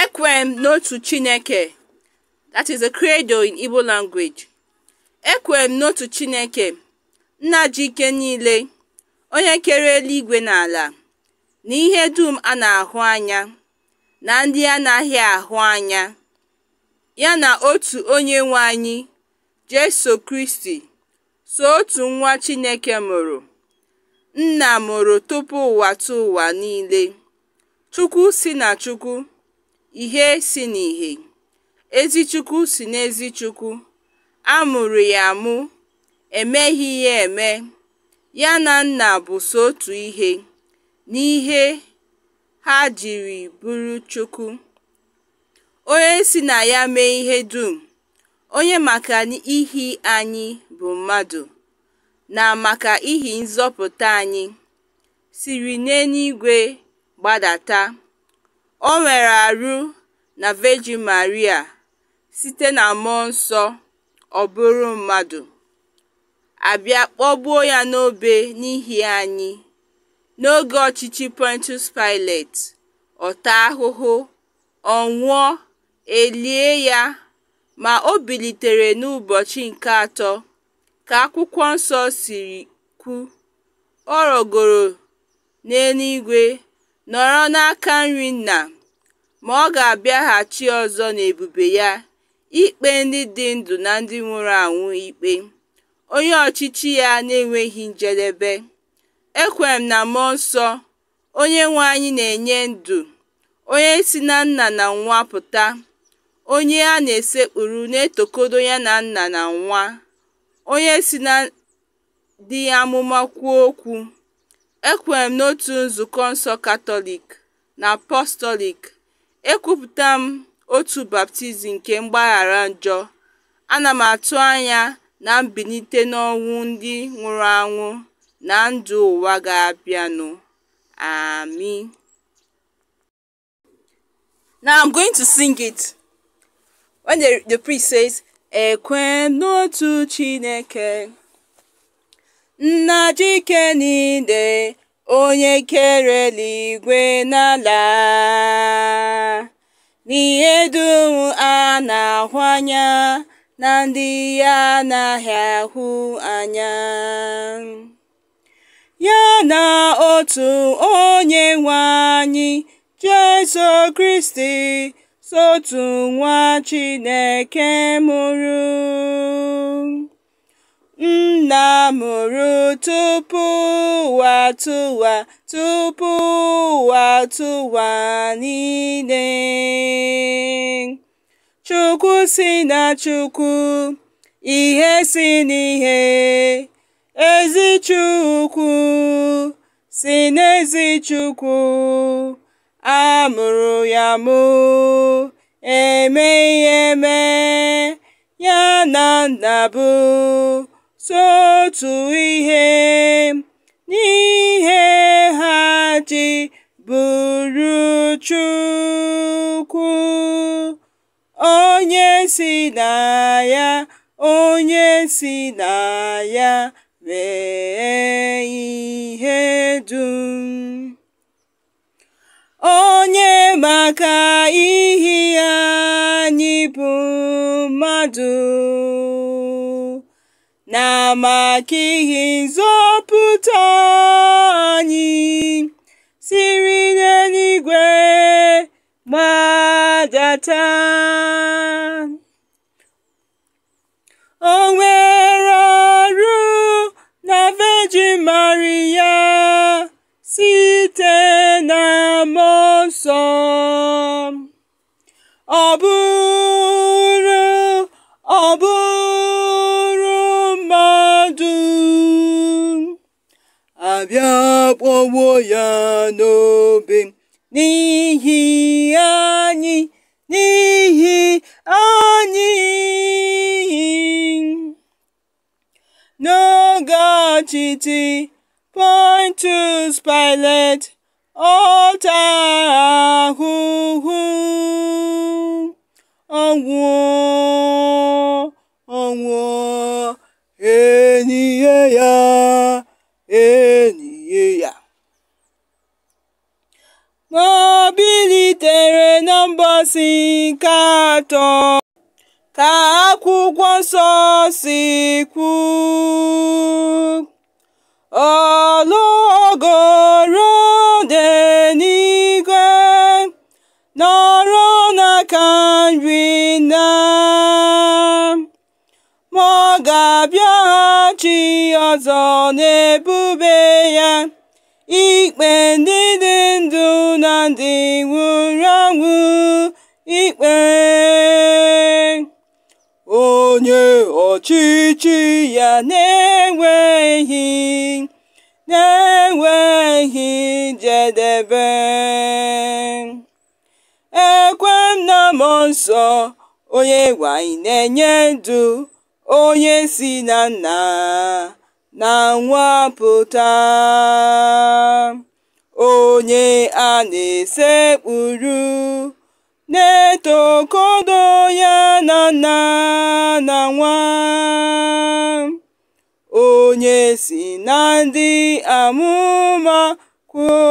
Ekwem n'otu Chineke that is a credo in Igbo language. Ekwem n'otu Chineke, nna ji ike niile, onye kere eluigwe na ala, na ihe dum a na-ahụ anya, na ndị anaghị ahụ anya, ya na otu onye nwe anyị, Jesu Kristi, so otu nwa Chineke mụrụ, nna mụrụ tupu ụwa tụ ụwa niile, Chukwu si na Chukwu ihe si n'ihe ezi Chukwu si n'ezi Chukwu a mụrụ ya amụ emeghị ya eme ya na Nna bụ so otu ihe n'ihe ha jiri bụrụ Chukwu onye si na ya mee ihe dum onye maka ihi anyị bụ mmadụ na maka ihi nzọpụta anyị siri n'eluigwe gbadata o nwere arụ na Virgin Maria site na Mmụọ Nsọ ọ bụrụ mmadụ, a bịa kpọgbuo ya n'obe n'ihi anyị, n'oge ọchịchị Pontius Pilate, ọ taa ahụhụ, ọ nwụọ, e ya, ma o bilitere n'ụbọchị nke atọ ka Akwụkwọ Nsọ siri kwu, ọ rọgoro n'eluigwe nọrọ n'aka nri Nna. ma ọ ga-abịaghachi ọzọ n'ebube ya ikpe ndị dị ndụ na ndị nwụrụ anwụ ikpe, onye ọchịchị ya n'enweghị njedebe, ekwere m na Mmụọ Nsọ, nwe anyị na-enye ndụ, onye si na Nna na Nwa pụta, onye a na-esekpuru na-etokodo ya na Nna na Nwa, onye si na Dị Amụma kwuo okwu, ekwere n'otu nzukọ nsọ Katọlik na Apọstọlik. “Ekwupụta m otu baptizim nke mgbaghara njọ, ana m atụ anya na mbilite n'ọnwụ ndị nwụrụ anwụ na ndụ ụwa ga-abịanụ, ami Now I'm going to sing it. When the, priest says, Ekwe n'otu Chineke, nna Jike niile onye kere eluigwe na ala n'ihe dum a na-ahụ anya na ndị ya anaghị ahụ anya ya na otu onye nwe anyị Jesu Kristi sotu nwa Chineke mụrụ mụrụ tupu ụwa tụwa tupu ụwa tụwa niile. Chukwu si na Chukwu, ihe si n'ihe, ezi Chukwu si n'ezi Chukwu, a mụrụ ya mụ, emeghị eme, ya na nna bụ otu ihe n'ihe ha ji bụrụ Chukwu onye si na ya onye si na ya mee ihe dum onye maka ihe anyị bụ mmadụ na maka ihe nzọpụta anyị siri n'eluigwe gbadata o nwere ọrụ na vejimari Maria site na mmụọ a bịakpọgbuo ya n'obe n'ihi anyị n'ihi anyị point to Pontius isi atọ ka akwụkwọ nsọ si kwu ologoro dị n'igwe nọrọ n'aka nri na ma ọ ga-abịaghachi ọzọ n'ebube ya ikpe ndị dị ndụ na ndị nwụrụ anwụ ikpe onye ọchịchị ya na-enweghị na-enweghị njedebe ekwe m nsọ onye nwanyị na-enye ndụ onye si na nna na nwapụta onye a na-esekpuru t'okodo ya na nna na nwa onye si na ndị amụma kwuokwu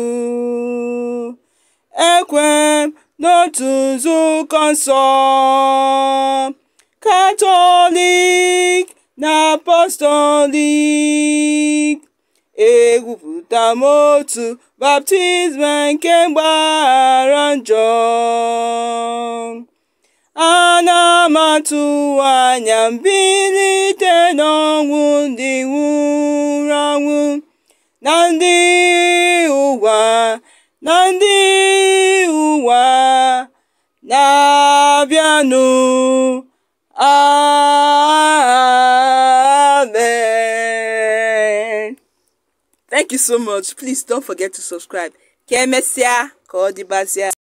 okwu ekwe n'otu nzukọ katọlik na apostolik egwupụta m otu baptizim nke mgbaghara njọ ana m atụ anya mbilite n'ọnwụ ndị nwụrụ anwụ na ndị ụwa na ndị ụwa na-abịanụ a thank you so much please don't forget to subscribe ka emesịa ka ọ